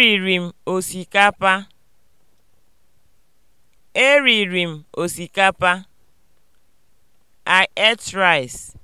Eriri m osikapa. Eriri m osikapa. I ate rice.